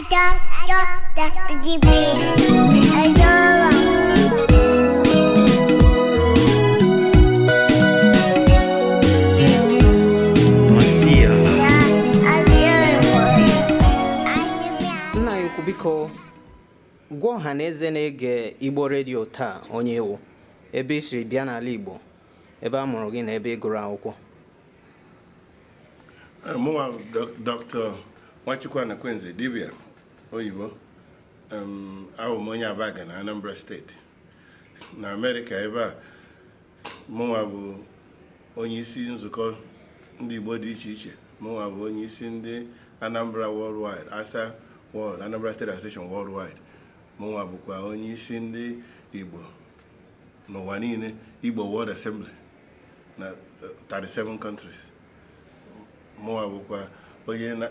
Nna biko gwa ọha na eze na-ege igbo redio taa onye ewu ebe ị siri bịa n'ala igbo ebe a mụrụ gị na ebe ị gụrụ akwụkwọ mụnwa dr nwachukwu anakwenze dibia oyibo abụ m onye Abaga na Anambra steeti na Amerịka ebe a mụnwa bụ onye isi nzukọ ndị Igbo dị iche iche mụnwa bụ onye isi ndị Anambra Worldwide Asa World Anambra State Association Worldwide mụnwa bụkwa onye isi ndị Igbo n'ụwa niile Igbo World Assembly na 37 countries mụnwa bụkwa onye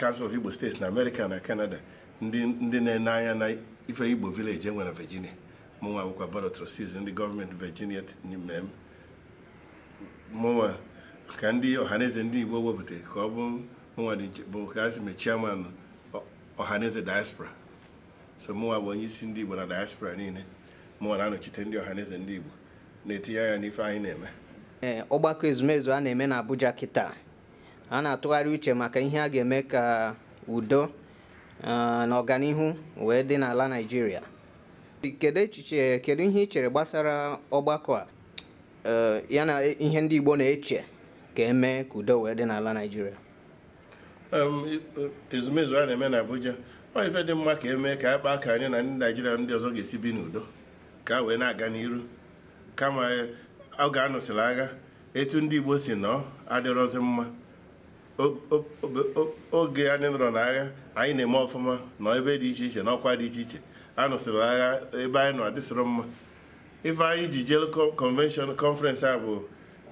Council of Igbo steeti na Amerịka na kanada. ndị na-ene anya na ife igbo vileji enwere virginia mụnwa bụkwa board ndị gọọmenti virginia mee mụnwa ka ndị ọhaneze ndị igbo wepụtara ka ọ bụ mụnwa bụ ka azị mechie ọhaneze diaspora so mụnwa bụ onye isi ndị igbo na diaspora niile mụnwa na-anọchite ndị ọhaneze ndị igbo na-etinye anya n'ife anyị na-eme eh, ọgbakọ ezumezu a na-eme na Abuja kịta a na-atụgharị uche maka ihe a ga-eme ka udo Eh, na ọganihu wee dị n'ala Naịjirịa kedu echiche kedu ihe ị chere gbasara ọgbakọ a eh, ya na ihe ndị Igbo na-eche ka eme ka udo wee dị n'ala naijiria. E, ezumezu a na-eme na Abuja ọ ife dị mma ka eme ka a kpaa ka anyị na ndị naijiria ndị ọzọ ga-esi bi n'udo ka wee na-aga n'iru kama eh, ọ ga agha etu ndị Igbo si nọ adịrọzi mma oge anyị nọrọ n'agha anyị na-eme ọfụma na ebe dị iche iche na ọkwa dị iche iche anụsịrị agha ebe anyị nọ adịsịrọ mma ife anyị ji jee convention conference a bụ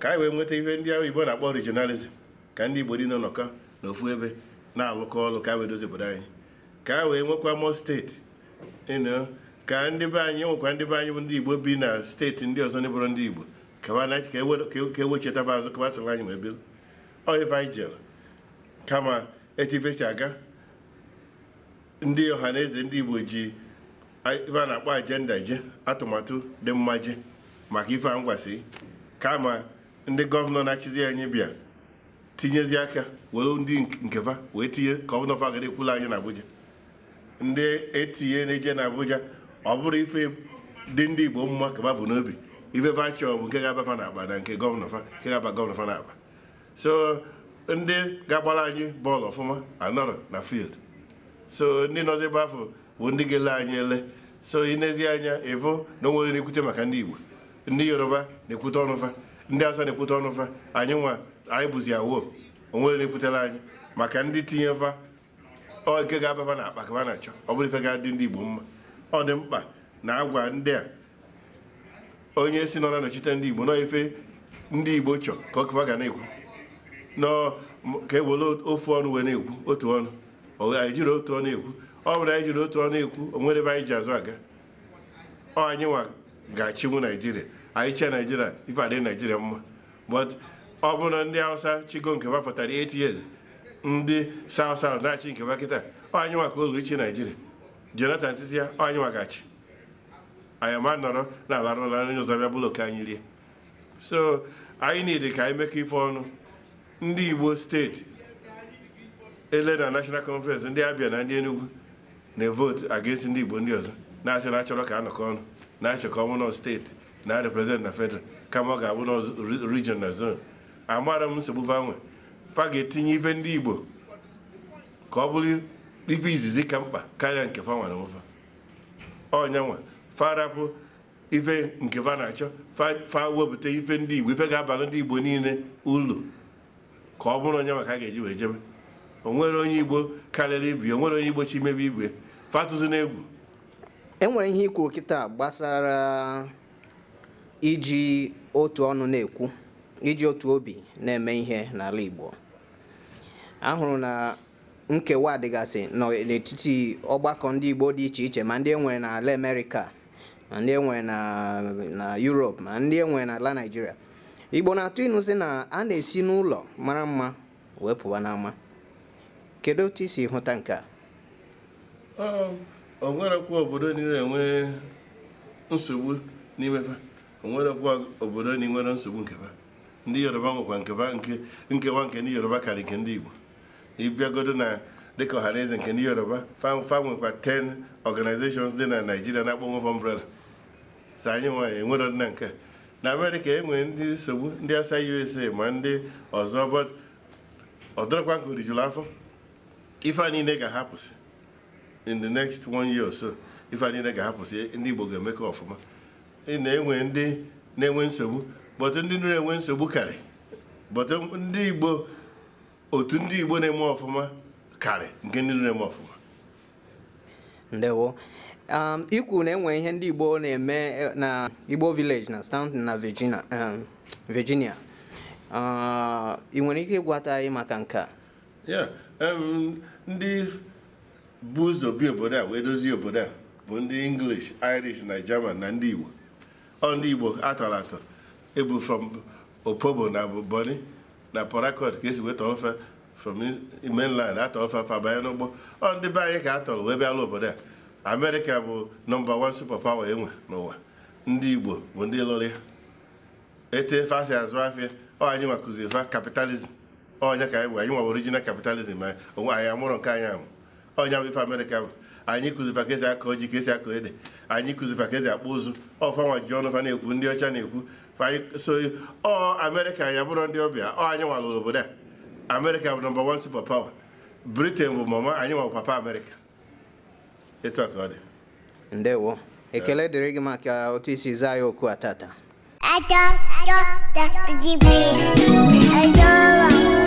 ka anyị wee nweta ihe ndị ahụ Igbo na-akpọ regionalism ka ndị Igbo dị nọnọkọ n'ofu ebe na-alụkọ ọlụ ka wee dozie obodo anyị ka a wee nwekwa mọ steeti ka ndị be anyị nwekwa ndị be anyị bụ ndị Igbo bi na steeti ndị ọzọ ndị bụrụ ndị Igbo ka ewechetaba e, e azụ ka gbasara anyị ma ebiri ọ ife anyị jere kama etu ife si aga ndị ọha ndị Igbo ji ife a na-akpọ ajenda je atụmatụ dị mma je maka ife a kama ndị gọvanọ na-achịzi anyị bịa tinyezi aka were ndị nkefa wee tinye ka ọ ekwula anyị na Abuja ndị etinye na-eje na Abuja ọ bụrụ ife dị ndị Igbo mma kaba bụ n'obi ife fa chọọ bụ nke ga-aba fa na akpa na nke gọvanọ fa nke ga-aba gọvanọ fa na akpa so ndị ga-agbara anyị bọọlụ ọfụma anọrọ na field so ndị nọzi ebe afọ bụ ndị ga-ele anyị ele so inezi anya ịvụ na onwere na-ekwute maka ndị Igbo ndị Yoruba na-ekwute ọnụfa ndị Hausa na-ekwute ọnụfa anyị nwa anyị bụzi awoo onwere na-ekwutela anyị maka ndị tinye va oke ga-abafa na akpa ka ha na-achọ ọ bụrụ ife ga-adị ndị Igbo mma ọ dị mkpa na agwa ndị a onye si nọ na nọchite ndị Igbo nọ ife ndị Igbo chọ ka ọ kụwa ga na-ekwu nọ ka e ofu ọnụ wee na-ekwu otu ọnụ anyị jiri otu ọnụ ekwu ọ bụrụ anyị jiri otu ọnụ ekwu o nwere ebe anyị ji azụ aga ọ anyị nwa ga-achinwu naijiria anyị chee naijiria ife adị naijiria mma but ọ bụrụ na ndị hausa chigo nke bapụtara 8 years ndị south na-achị nke bakịta ọ anyị nwa ka olu ichi naijiria jonathan sisi ya ọ anyị nwa ga-achị anyị ma nọrọ na-alarụla nri ụzọ bịa bụlọ ka anyị rie so anyị niile ka anyị mekọ ife ọnụ ndị Igbo steeti ele na National Conference ndị Abia na ndị Enugu na-evote against ndị Igbo ndị ọzọ na-asị na achọrọ ka anọkọ ọnụ na-achọ ka ọ steeti na represent na federal kama ọ ga-abụ nọ region na zone amara m nsogbu vanwe fa ga-etinye ife ndị Igbo ka ọ bụrụ ife izizi ka mkpa karịa nke fanwa na ụfa onyanwa ife nke fa na-achọ fa wepụta ife ndị Igbo ife ga-abalụ ndị Igbo niile ụlọ ka ọ bụrụ onye maka a ga-eji wee jebe onwere onye igbo karịrị ibi onwere onye igbo chi imebe igwe fatụzi n'egwu enwere ihe ikwu kịta gbasara iji otu ọnụ na-ekwu iji otu obi na-eme ihe n'ala igbo ahụrụ na nkewa dịgasị n'etiti ọgbakọ ndị igbo dị iche iche ma ndị enwere n'ala amerịka ma ndị enwere na Europe ma ndị enwere n'ala naijiria igbo na-atụ ịnụ sị na a na-esi n'ụlọ mara mma wee pụwa n'ama kedu otu isi hụta nke a um, onwerekwa obodo niile enwe nsogbu n'imefe onwerekwa obodo niile nwere nsogbu nkefa ndị yoruba nwekwa nkewa nkewa nke ndị yoruba karịa nke ndị igbo ịbịagodo na dịka ọhaneze nke ndị yoruba fa nwekwa ten organizations dị na naijiria na-akpọ nwefọ umbrella so anyị nwanyị enwero na nke a. na amerịka e nwere ndị nsogbu ndị asa usa ma ndị ọzọ ọdọrọkwa nke rijuru afọ ife a niile ga-ahapụsị in the next one year or so ife a niile ga-ahapụsị ndị igbo ga-eme ka ọfụma na-enwe ndị na-enwe nsogbu bọtụ ndị na-enwe nsogbu karị bọtụ ndị igbo otu ndị igbo na-eme ọfụma karị nke ndị na-eme ọfụma ndewo Um, ikwu na enwe ihe ndị Igbo na-eme eh, na Igbo village na Stanton na Virginia um, uh, ị nwere ike ịgwata anyị maka nke a um, ndị buzobi obodo a wee dozie obodo a bụ ndị English Irish na German na ndị Igbo ọ ndị Igbo atọrọ atọ ebu from Opobo na Bonny na Port ka esi weta ọfe from mainland atọlfe fabanye n'ụgbọ ọ ndị be anyị ka atọrọ wee obodo a amerịka bụ nọmba wan superpower enwe n'ụwa ndị igbo bụ ndị lụrụ ya ete efe asị azụ afịa ọ anyị nwa kụziri fa kapitalizm ọnya ka anyị bụ anyị nwa original kapitalizm anyị onwe anyị amụrụ nke anyị amụ ọnya bụ ife amerịka bụ anyị kụzifa ka esi akọ ji ka esi akọ ede anyị kụzifa ka esi akpọ ụzụ ọfanwa ji ọnụ fa na-ekwu ndị ọcha na-ekwu so ọ amerịka anyị abụrụ ndị ọbịa ọ anyị nwa lụrụ obodo a amerịka bụ nọmba wan super power britain bụ mama anyị nwa bụ papa amerịka akade. ndewo ekele ato, ato, ato, ato, ato, ato, ato, ato, ato, ato, ato, ato,